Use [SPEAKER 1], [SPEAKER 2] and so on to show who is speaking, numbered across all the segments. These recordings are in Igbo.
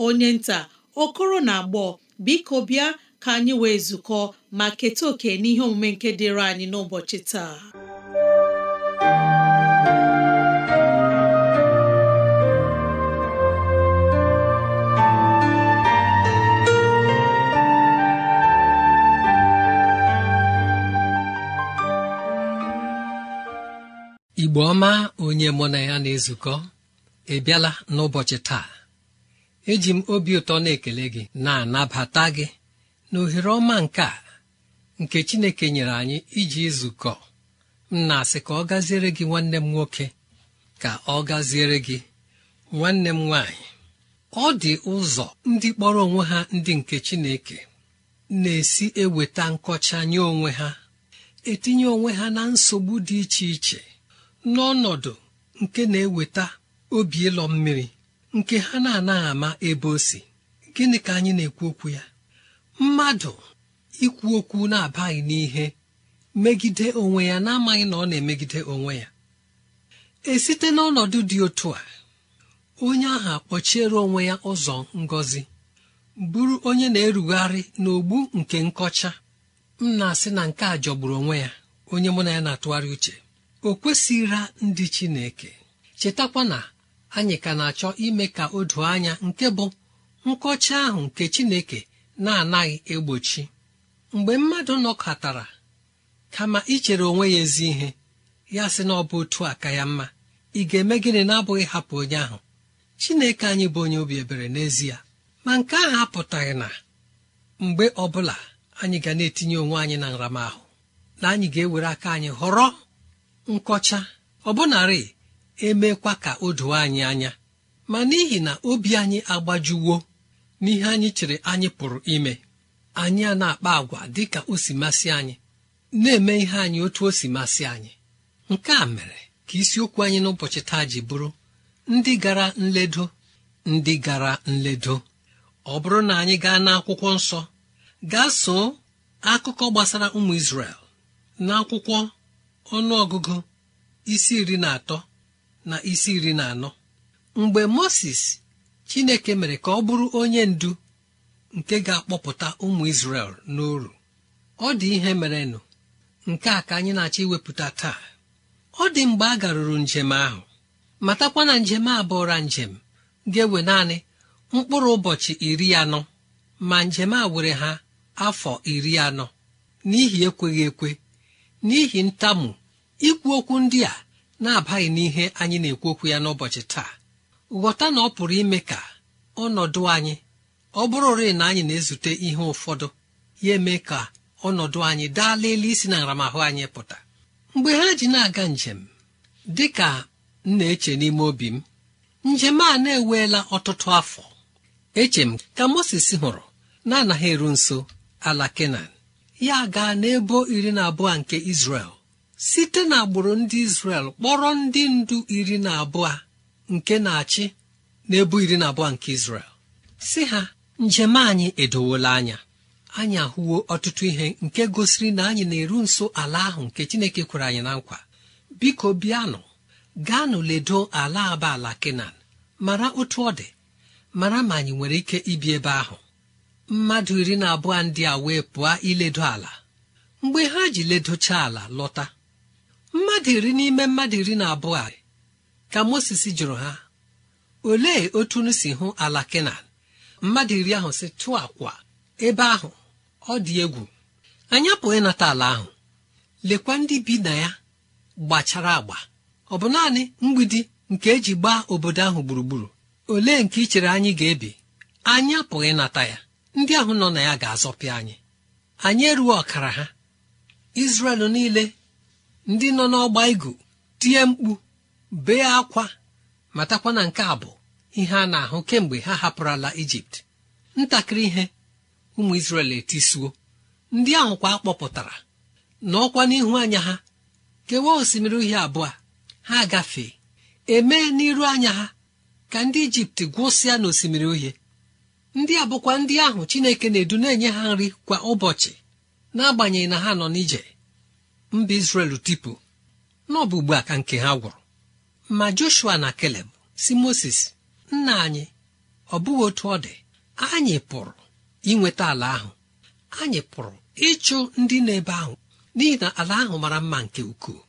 [SPEAKER 1] onye nta okoro na agbọ biko bịa ka anyị wee zukọ ma keta oke n'ihe omume nke dịịrị anyị n'ụbọchị taa
[SPEAKER 2] Igbo ọma onye mụ na ya na-ezukọ ebiala n'ụbọchị taa eji m obi ụtọ na-ekele gị na-anabata gị na ohere ọma nke a nke Chineke nyere anyị iji zukọ m na-asị ka ọ gaziere gị nwanne m nwoke ka ọ gaziere gị nwanne m nwaanyị ọ dị ụzọ ndị kpọrọ onwe ha ndị nke Chineke na-esi eweta nkọcha nye onwe ha etinye onwe ha na nsogbu dị iche iche n'ọnọdụ nke na-eweta obi ịlọ mmiri nke ha na-anaghị ama ebe o si gịnị ka anyị na-ekwu okwu ya mmadụ ikwu okwu na-abaghị n'ihe megide onwe ya na-amaghị na ọ na-emegide onwe ya esite n'ọnọdụ dị otu a onye ahụ kpọchiere onwe ya ụzọ ngọzi bụrụ onye na-erugharị n'ogbu nke nkọcha m na-asị na nke a jọgburu onwe ya onye mụ na ya na-atụgharị uche o kwesịghịra ndị Chineke chetakwa na anyị ka na-achọ ime ka o doo anya nke bụ nkọcha ahụ nke chineke na-anaghị egbochi mgbe mmadụ nọkọtara kama ichere onwe ya ezi ihe ya sị na ọ bụ otu aka ya mma ị ga-eme gịnị na-abụghị hapụ onye ahụ chineke anyị bụ onye obi ebere n'ezie ma nke ahụ apụtaghị na mgbe ọbụla anyị ga na-etinye onwe anyị na nramahụ na anyị ga-ewere aka anyị họrọ nkọcha ọbụnarị emekwa ka o doo anyị anya ma n'ihi na obi anyị agbajuwo n'ihe anyị chere anyị pụrụ ime anyị a na-akpa agwa dị ka o si masị anyị na-eme ihe anyị otu o si masị anyị nke a mere ka isiokwu anyị n'ụbọchị taa ji bụrụ ndị gara nledo ndị gara nledo ọ bụrụ na anyị gaa n'akwụkwọ nsọ gaa soo akụkọ gbasara ụmụ Izrel n'akwụkwọ ọnụọgụgụ isi iri na atọ na isi iri na anọ mgbe Moses Chineke mere ka ọ bụrụ onye ndu nke ga-akpọpụta ụmụ Izrel n'oru ọ dị ihe merenụ nke a ka anyị na-achọ iwepụta taa ọ dị mgbe a garuru njem ahụ matakwa na njem a njem ga-ewe naanị mkpụrụ ụbọchị iri anọ ma njem a were ha afọ iri anọ n'ihi ekweghị ekwe n'ihi ntamu ikwu okwu ndị a na-abaghị n'ihe anyị na-ekwu okwu ya n'ụbọchị taa ghọta na ọ pụrụ ime ka ọnọdụ anyị ọ bụrụ ore na anyị na-ezute ihe ụfọdụ ya eme ka ọnọdụ anyị daa elu isi na nramahụ anyị pụta mgbe ha ji na-aga njem dị ka m na-eche n'ime obi m njem a na-eweela ọtụtụ afọ eche m ka Moses hụrụ na-anaghị eru nso ala Kenan ya gaa n'ebo iri na abụọ nke Izrel site n'agbụrụ ndị Izrel kpọrọ ndị ndu iri na abụọ nke na-achị na-ebu iri na abụọ nke Izrel si ha njem anyị edowola anya anyị ahụwo ọtụtụ ihe nke gosiri na anyị na-eru nso ala ahụ nke Chineke kwere anyị na nkwa biko bịanụ gaanụ ledo ala aba ala Kenan mara otu ọ dị mara ma anyị nwere ike ibi ebe ahụ mmadụ iri na abụọ ndị a wee pụọ iledo ala mgbe ha ji ledocha ala lọta mmadụ iri n'ime mmadụ iri na abụọ a ka Mosis jụrụ ha olee otu unu si hụ ala kenan mmadụ iri ahụ si tụọ akwa ebe ahụ ọ dị egwu anya apụghị ịnata ala ahụ lekwa ndị bi na ya gbachara agba ọ bụ naanị mgbidi nke eji gbaa obodo ahụ gburugburu olee nke ị chere anyị ga-ebi anya apụghị ịnata ya ndị ahụ nọ na ya ga-azọpịa anyị anyị eruo ọkara ha izrel niile ndị nọ n'ọgba igu tie mkpu bee akwa matakwa na nke a bụ ihe a na-ahụ kemgbe ha hapụrụla ijipt ntakịrị ihe ụmụ isrel etisuo ndị ahụ kwa kpọpụtara n'ọkwa n'ihu anya ha kewaa osimiri uhie abụọ ha gafee emee n'iru anya ha ka ndị ijipt gwụsịa n'osimiri uhie ndị a bụkwa ndị ahụ chineke na-edu na-enye ha nri kwa ụbọchị n'agbanyeghị na ha nọ n'ije mba izrel tipu n'ọbụ ugbu a nke ha gwụrụ ma joshua na keleb si moses nna anyị ọ bụghị otu ọ dị anyị pụrụ inweta ala ahụ anyị pụrụ ịchụ ndị na-ebe ahụ n'ihi na ala ahụ mara mma nke ukwuu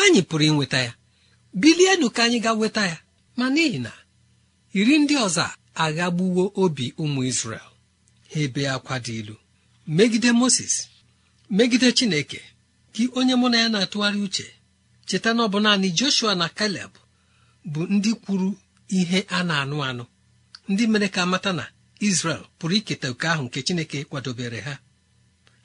[SPEAKER 2] anyị pụrụ inweta ya bilienu ka anyị ga nweta ya ma n'ihi na iri ndị ọzọ aghagbuwo obi ụmụ izrel ha ebe akwa dị ilu megide moses megide chineke gị onye mụ na ya na-atụgharị uche cheta na ọ bụ naanị joshua na Caleb bụ ndị kwuru ihe a na-anụ anụ ndị mere ka mata na izrel pụrụ iketa oke ahụ nke chineke kwadobere ha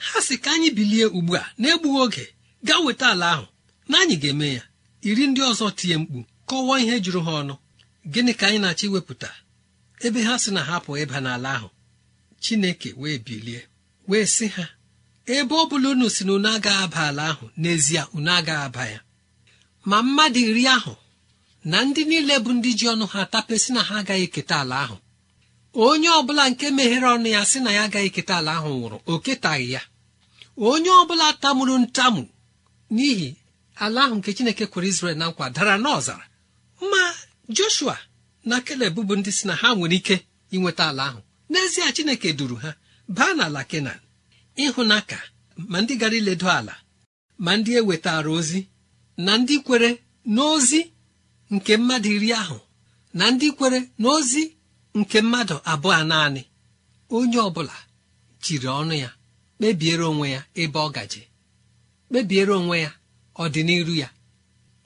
[SPEAKER 2] ha si ka anyị bilie ugbu a na-egbughị oge gaa weta ala ahụ na anyị ga-eme ya iri ndị ọzọ tinye mkpu kọwaa ihe jụrụ ha ọnụ gịnị ka anyị na-achọ iwepụta ebe ha si na ha ịba n'ala ahụ chineke wee bilie wee sị ha ebe ọ bụla unu si na unu agaghị aba ala ahụ n'ezie unu agaghị aba ya ma mmadụ iri ahụ na ndị niile bụ ndị ji ọnụ ha tapesị na ha agaghị eketa ala ahụ onye ọbụla nke meghere ọnụ ya sị na ya agaghị eketa ala ahụ nwụrụ o ketaghị ya onye ọbụla tamuru ntamu n'ihi ala ahụ nke chineke kwere izrel na nkwa dara n'ọzara ma joshua na keleb bụ ndị si na ha nwere ike inweta ala ahụ n'ezie chineke duru ha baa n'ala kenan ịhụnaka ma ndị gara iledo ala ma ndị ewetara ozi na ndị kwere n'ozi nke mmadụ iri ahụ na ndị kwere n'ozi nke mmadụ abụọ naanị onye ọ bụla jiri ọnụ ya kpebiere onwe ya ebe ọ gaje kpebiere onwe ya ọdịnihu ya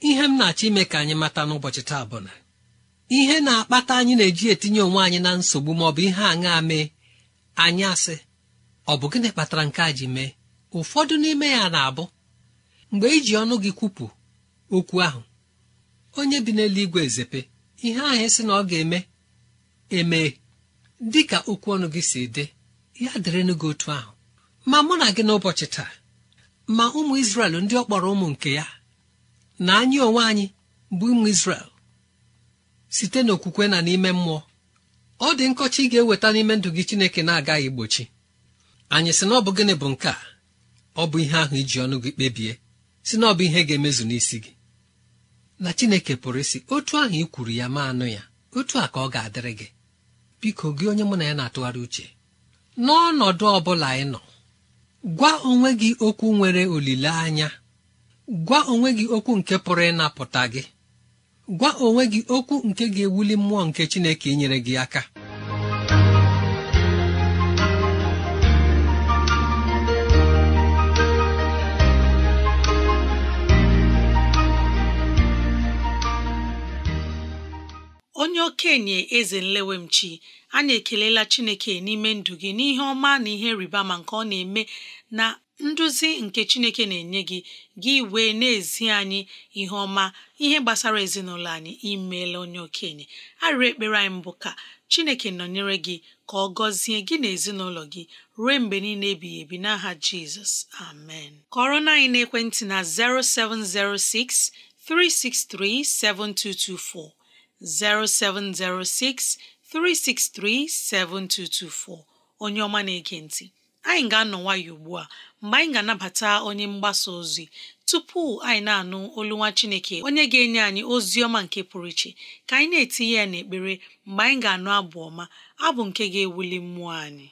[SPEAKER 2] ihe m na-achọ ime ka anyị mata n'ụbọchị taa bụ na ihe na-akpata anyị na-eji etinye onwe anyị na nsogbu maọbụ ihe aṅa mee anyị asị ọ bụ gịnị kpatara nke a ji mee ụfọdụ n'ime ya na-abụ mgbe iji e ọnụ gị kwupụ okwu ahụ onye bi n'eluigwe ezepe ihe ahụ sị na ọ ga-eme eme dị ka okwu ọnụ gị si dị ya dịrịnụ gị otu ahụ ma mụ na gị n'ụbọchị taa ma ụmụ isrel ndị ọ kpọrọ ụmụ nke ya na anyị onwe anyị bụ ụmụ isrel site n'okwukwe na n'ime mmụọ ọ dị nkọcha ị ga-eweta n'ime ndụ gị Chineke na-agaghị igbochi anyị sị na ọ bụ gịnị bụ nke a ọ bụ ihe ahụ iji ọnụ gị kpebie si na ọ bụ ihe ga-emezu n'isi gị na Chineke pụrụ isi otu ahụ ị kwuru ya ma anụ ya otu a ka ọ ga-adịrị gị biko gị onye mụ na ya na-atụgharị uche n'ọnọdụ ọ bụla ị nọ gwa onwe gị okwu nwere olileanya gwa onwe gị okwu nke pụrụ ịnapụta gị gwa onwe gị okwu nke ga-ewuli mmụọ nke Chineke nyere gị aka
[SPEAKER 1] okenye eze nlewemchi anyị ekelela chineke n'ime ndụ gị n'ihe ọma na ihe rịba ma nke ọ na-eme na nduzi nke chineke na-enye gị gị wee na-ezi anyị ihe ọma ihe gbasara ezinụlọ anyị imeela onye okenye arịrị ekpere anyị mbụ ka chineke nọnyere gị ka ọ gọzie gị na ezinụlọ gị ruo mgbe niile ebighị ebi n'aha jizọs amen kọrọ na anyị na ekwentị na 0706 363 7224 0706 7224 onye ọma na-ege ntị anyị ga-anọ nwayọ ugbu a mgbe anyị ga-anabata onye mgbasa ozi tupu anyị na-anụ olu nwa Chineke onye ga-enye anyị ozi ọma nke pụrụ iche ka anyị na-etinye ya n'ekpere mgbe anyị ga-anụ abụ ọma abụ nke ga-ewuli mmụọ anyị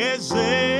[SPEAKER 3] eze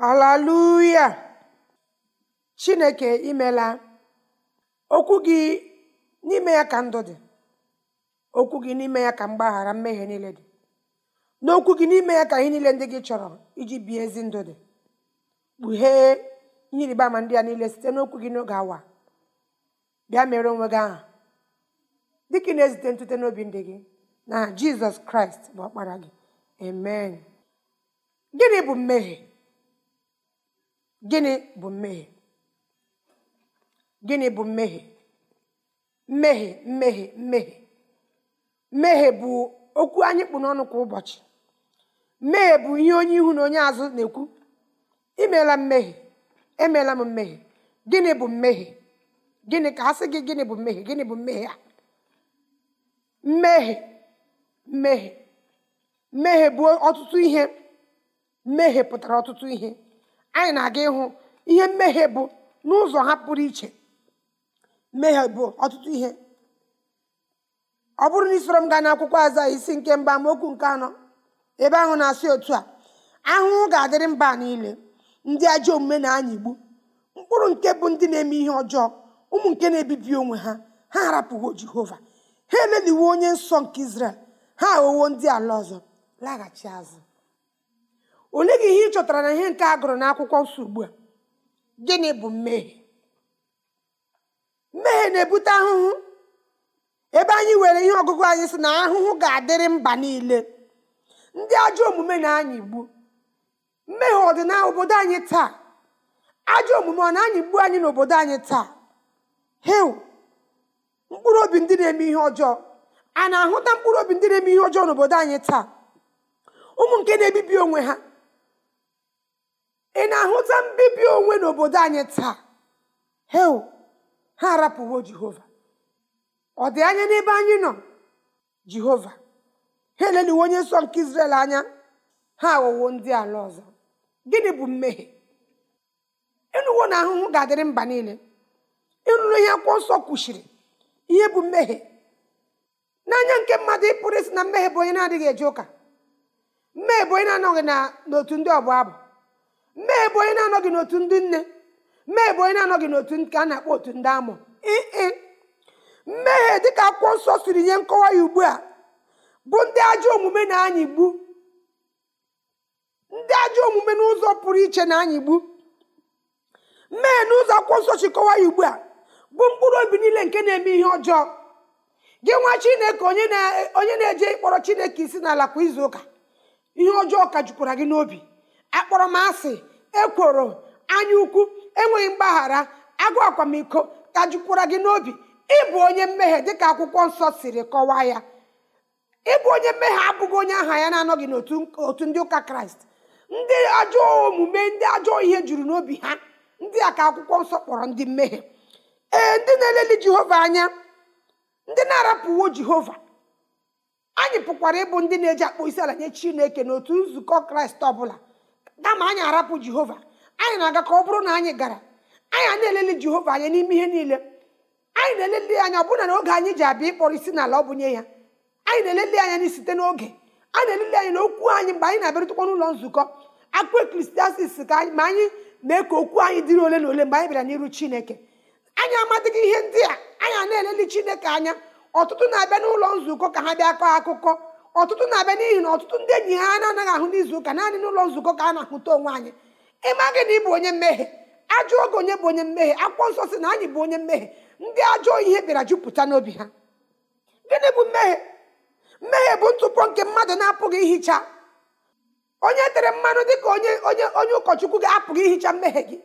[SPEAKER 4] alaluya chineke imela okwu gị n'ime ya ka ndụ dị okwu gị n'ime ya ka mgbaghara mmehie niile dị n'okwu gị n'ime ya ka ihe niile ndị gị chọrọ iji bie ezi ndụ dị kpughee ihe ama ndị a niile site n'okwu gị n'oge awa bịa mere onwe gị aha dịka na-ezite ntute n'obi ndị gị na jizọs kraịst bụ ọkpara gị amen gịnị bụ mmehie gịnị bụ mmehie gịnị bụ mmehie mmehie mmehie mmehie mmehie bụ okwu anyị kpụ n'ọnụ kwa ụbọchị mmehie bụ ihe onye ihu na onye azụ na-ekwu imela mmehie emeela m mmehie gịnị bụ mmehie gịnị ka a sị gị gịnị bụ mmehie gịnị bụ mmehie a mmehie mmehie mmehie bụ ọtụtụ ihe mmehie pụtara ọtụtụ ihe anyị na-aga ịhụ ihe mmehie bụ n'ụzọ ha pụrụ iche mmehie bụ ọtụtụ ihe ọ bụrụ na isoro m gaa n'akwụkwọ aza isi nke mba amaokwu nke anọ ebe ahụ na-asị otu a ahụhụ ga-adịrị mba niile ndị ajọ omume na-anyịgbu mkpụrụ nke bụ ndị na-eme ihe ọjọọ ụmụ nke na-ebibi onwe ha ha harapụwo jehova ha eleliwo onye nsọ nke izrel ha aghọwo ndị ala ọzọ laghachi azụ olee gị ihe ị chọtara na ihe nke a gụrụ n'akwụkwọ nsọ ugbu a gịnị bụ mmehie mmehie na-ebute ahụhụ ebe anyị were ihe ọgụgụ anyị si na ahụhụ ga-adịrị mba niile ndị ajọ omume na anyị igbu mmehie ọ dị obodo anyị taa ajọ omume ọ na-anya igbu anyị n'obodo anyị taa heu mkpụrụ obi ndị na-eme ihe ọjọọ a na-ahụta mkpụrụ obi ndị na-eme ihe ọjọọ n'obodo anyị taa ụmụ nke na-ebibi onwe ha ị na-ahụta mbibi onwe n'obodo anyị taa hel ha arapụwo jehova ọ dị anya n'ebe anyị nọ jehova ha eleliwo onye nsọ nke izrel anya ha aghọwo ndị ala ọzọ gịnị bụ mmehie ịnụwo na ahụhụ ga-adịrị mba niile ịnụrụ ihe akwụkwọ nsọ kwuchiri ihe bụ mmehie n'anya nke mmadụ ịpụrụ isi na mmehie bụ onye na-adịghị eje ụka mmehie bụ onye na-anọghị n'otu ndị ọbụ abụ mee bụ onye na-anọghị n'otu ndị nne mee bụ onye na-anọghị n'otu ka a na-akpọ otu ndị amụ ee mmehie dịka akwụkwọ nsọ siri nye nkọwa ya ugbu a bụ ndị ajọ omume na anyị gbu ndị ajọ omume n'ụzọ pụrụ iche na anyị gbu mmehie n'ụzọ akwụkwọ nsọ kọwa ya ugbu a bụ mkpụrụ obi niile nke na-eme ihe ọjọọ gị nwa chineke onye na-eje ịkpọrọ chineke isi n'ala kwa izu ụka ihe ọjọọ ka jukwara gị n'obi akpọrọmasị ekworo anya ukwu enweghị mgbaghara agụ akwamiko tajukwara gị n'obi ịbụ onye mmehie dịka akwụkwọ nsọ siri kọwaa ya ịbụ onye mmehie abụghị onye aha ya na-anọghị n'otu ndị ụka kraịst ndị ajọọ omume ndị ajọọ ihe juru n'obi ha ndị a ka akwụkwọ nsọ kpọrọ ndị mmehie ee ndị na-eleli jehova anya ndị na-arapụwo jehova anyị pụkwara ịbụ ndị na-eji akpụ isi ala nye chineke n'otu nzukọ kraịst ọbụla dama anyị arapụ jehova anyị na-aga ka ọ bụrụ na anyị gara anyị a na-elele jehova anya n'ime ihe niile anyị na-elele anya ọbụna na n'oge anyị ji abịa ịkpọrọ isi n'ala ọ bụnye ya anyị na-elele anya na site n'oge a na-elele anyị na okwu anyị mgbe anyị na-abịarụtụkwa n'ụlọ nzukọ akpụ ekristiasis ka anyị ma anyị mee ka okwu anyị dịrị ole na ole mgbe anyị bịara n'iru chineke anyị amadịghị ihe ndị a anyị a na-elele chineke anya ọtụtụ na-abịa n'ụlọ nzukọ ka ha bịa kọọ akụkọ ọtụtụ na-abịa n'ihi na ọtụtụ ndị enyi ha na-anaghị ahụ n'izu ụka naanị n'ụlọ nzukọ ka a na-ahụta onwe anyị ịma gị na ị bụ onye mmehie ajọ oge onye bụ onye mmehie akwụkwọ nsọ si na anyị bụ onye mmehie ndị ajọ ihe bịara jupụta n'obi ha gịnị bụ mmehie mmehie bụ ntụpọ nke mmadụ na-apụghị ihicha onye tere mmanụ dị ka onye onye onye ụkọchukwu ga-apụghị ihicha mmehie gị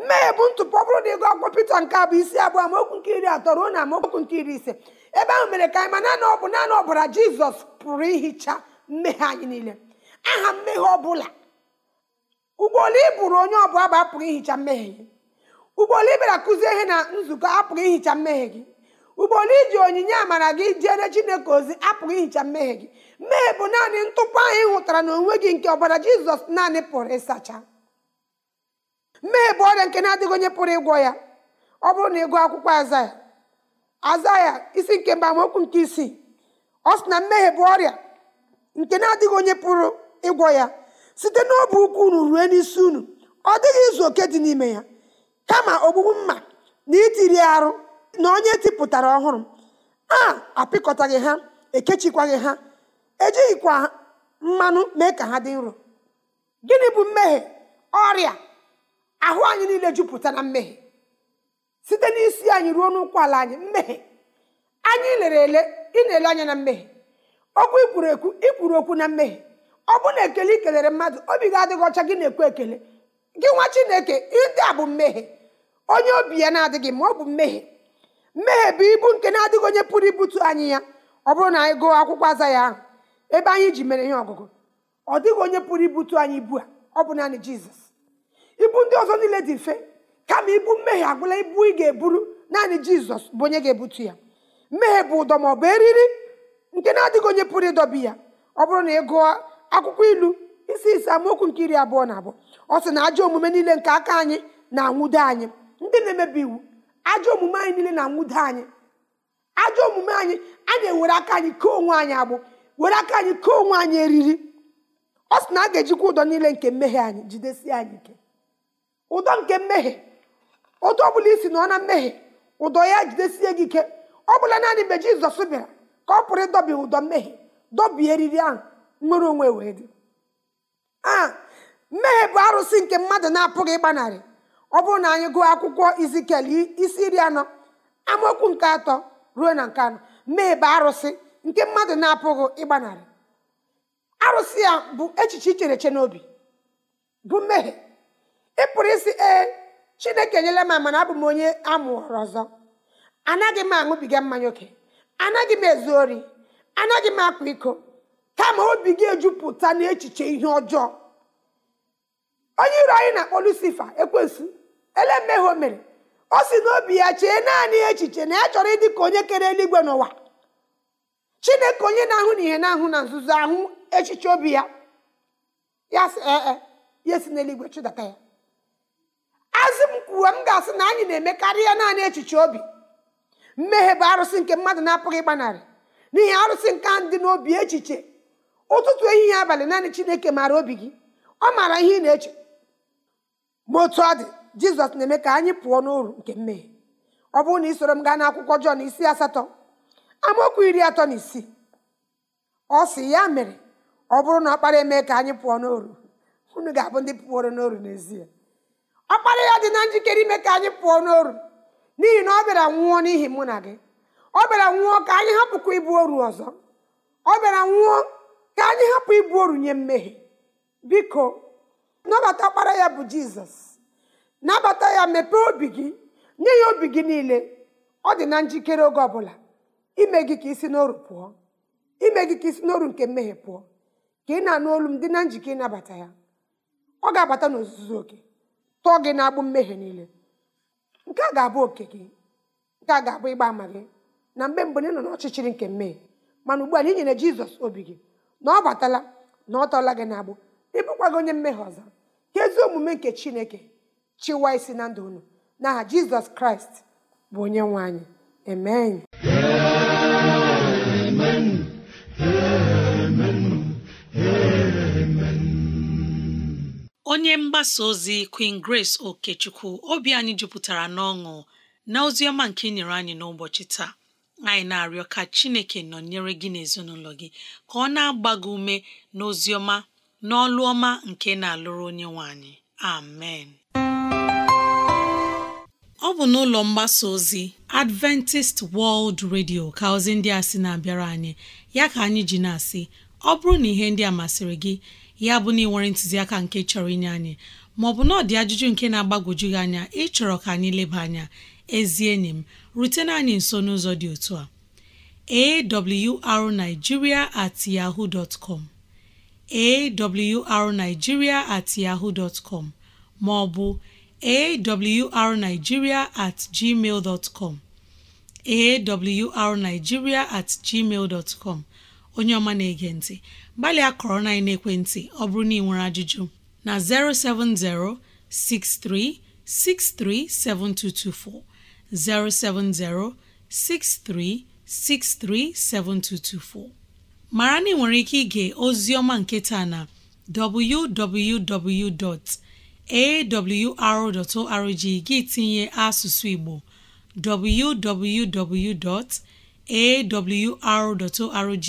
[SPEAKER 4] mmehie bụ ntụpọ bụrụ na ego akpọ Pita nke abụ isi abụọ amaokwu nke iri atọ ruo na amaokwu nke iri ise ebe ahụ mere ka anyị ma naanị ọ bụ naanị ọbara jizọs pụrụ ihicha mmehie anyị niile aha mmehie ọbụla ụgbọelu iburu onye ọbụla bụ apụrụ ihicha mmehie gị ụgbọelu ibera kụzie ihe na nzukọ apụrụ ihicha mmehie gị ụgbọelu iji onyinye amara gị jere chineke ozi apụrụ ihicha mmehie gị mmehie bụ naanị ntụpọ anyị hụtara n'onwe gị nke ọbara jizọs naanị pụrụ ịsacha mmehie bụ ọrịa nke na-adịghị onye pụrụ ịgwọ ya ọ bụrụ na ịgụ akwụkwọ aza ya aza ya isi nke mba mokwu nke isii ọ sị na mmehie bụ ọrịa nke na-adịghị onye pụrụ ịgwọ ya site n'obi ukwu unu rue n'isi unu ọ dịghị izu oke dị n'ime ya kama ogbugbu mma na itiri arụ na onye tipụtara ọhụrụ a apịkọtaghị ha ekechikwaghị ha ejighịkwa mmanụ mee ka ha dị nro gịnị bụ mmehie ọrịa ahụ anyị niile jupụta na mmehie site n'isi anyị ruo n'ụkwụ ala anyị mmehie anyị lere ele ị na-ele anya na mmehie okwu ikwuru ekwu ikwuru okwu na mmehie ọ bụ na ekele i kelere mmadụ obi gị adịghị ọcha gị na-ekwu ekele gị nwa chineke ndị a bụ mmehie onye obi ya na-adịghị ma ọ bụ mmehie mmehie bụ ibu nke na-adịghị onye pụrụ ibutu anyị ya ọ bụrụ na anyị gụọ akwụkwọ aza ya ahụ ebe anyị ji mere ihe ọgụgụ ọ dịghị onye pụrụ ibutu anyị ibu a ọ bụ naanị jizọs ibu ndị ọzọ niile dị mfe kama ibu mmehie agwụla ibu ị ga-eburu naanị jizọs bụ onye ga-ebutu ya mmehie bụ ụdọ ma ọ bụ eriri nke na-adịghị onye pụrụ ịdọbi ya ọ bụrụ na ị gụọ akwụkwọ ilu isi isi amaokwu nke iri abụọ na abụọ ọ sị na ajọ omume niile nke aka anyị na-anwụdo anyị ndị na-emebi iwu ajọ omume anyị niile na-anwụdo anyị ajọ omume anyị a na-ewere aka anyị kee onwe anyị agbụ were aka anyị kee onwe anyị eriri ọ sị na a ga-ejikwa ụdọ niile nke mmehie anyị jidesie anyị ike ụdọ nke mmehie otu ọ bụla isi nọ na mmehie ụdọ ya jidesie gị ike ọ bụla naanị mgbe jizọs bịara ka ọ pụrụ ịdọbi ụdọ mmehie dọbie eriri ahụ nwere onwe wee dị a mmehie bụ arụsị nke mmadụ na-apụghị ịgbanarị ọ bụrụ na anyị gụọ akwụkwọ izikel isi iri anọ amaokwu nke atọ ruo na nke anọ mmehie bụ arụsị nke mmadụ na-apụghị ịgbanarị arụsị ya bụ echiche ichereche n'obi bụ mmehie ị pụrụ isi ee chineke enyela m mana abụ m onye amụrụ ọzọ anaghị m aṅụbiga mmanya oke anaghị m ezu ori anaghị m akwa iko kama obi gị ejupụta n'echiche ihe ọjọọ onye iro anyị na-akpọ lucifa ekwensu ele mmehie o mere o si n'obi ya chee naanị echiche na ya chọrọ ịdị ka onye kere eluigwe n'ụwa chineke onye na-ahụ na ihe na-ahụ na nzuzo ahụ echiche obi ya ya si ee ya si n'eluigwe chụdata ya kwuo m ga-asị na anyị na-emekarị ya naanị echiche obi mmehie bụ arụsị nke mmadụ na-apụghị ịgbanarị n'ihi arụsị nke ahụ dị n'obi echiche ụtụtụ ehihie abalị naanị chineke maara obi gị ọ maara ihe ị na-eche ma otu ọ dị jizọs na-eme ka anyị pụọ n'uru nke mmehie ọ bụrụ na ị soro m gaa n'akwụkwọ jọn isi asatọ amaokwu iri atọ na isii ọ sị ya mere ọ bụrụ na kpara emee ka anyị pụọ n'oru unu ga-abụ ndị pụoro n'oru n'ezie ọkpara ya dị na njikere ime ka anyị pụọ n'oru n'ihi na ọ bịara nwụọ n'ihi mụ na gị ọ bịara nwụọ ka anyị hapụkwa ibu oru ọzọ ọ bịara nwụọ ka anyị hapụ ibu oru nye mmehie biko nabata ọkpara ya bụ jizọs nabata ya mepee obi gị nye ya obi gị niile ọ dị na njikere oge ọbụla ime gị ka isi n'oru pụọ ime gị ka isi n'oru nke mmehie pụọ ka ị na-anụ olu m dị na njike ịnabata ya ọ ga-abata n'ozuzu oke tụọ gị na-agbụ mmehie niile nke a ga-abụ oke gị nke a ga-abụ ịgba ama gị na mgbe mgbe ị nọ n'ọchịchịrị nke mmehie mana ugbu a na inyere jizọs obi gị na ọ batala na ọ tọọla gị na-agbụ ịbụkwa gị onye mmehie ọzọ ka ezi omume nke chineke chịwa isi na ndụ unu n'aha jizọs kraịst bụ onye nwe anyị amen
[SPEAKER 1] onye mgbasa ozi Queen Grace Okechukwu obi anyị jupụtara n'ọṅụ na ozi ọma nke inyere nyere anyị n'ụbọchị taa anyị na-arịọ ka Chineke nọnyere gị n'ezinụlọ gị ka ọ na-agba ume n'ozi n'ọlụ ọma nke na-alụrụ onye nwe anyị amen ọ bụ n'ụlọ mgbasa ozi Adventist World Radio ka ozi ndị a sị na-abịara anyị ya ka anyị ji na-asị ọ bụrụ na ihe ndị a masịrị gị ya bụ na ị nwere ntụziaka nke chọrọ inye anyị maọbụ na ọ dị ajụjụ nke na-agbagwoju gị anya ịchọrọ ka anyị leba anya ezi enyi m rutena anyị nso n'ụzọ dị otu a awrnigeria at yahoo dot com at yahoo dot maọbụ awrnigeria at gmail dot com at gmail dot onye ọma na-ege ntị gbalịa kọrọ na ekwentị ọ bụrụ na ị nwere ajụjụ na 070 6363 7224 070 6363 7224 mara na ị nwere ike ige ozi ọma nke taa na www.awr.org gị tinye asụsụ Igbo www.awr.org